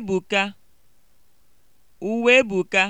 Uwebuka (Uwebuka)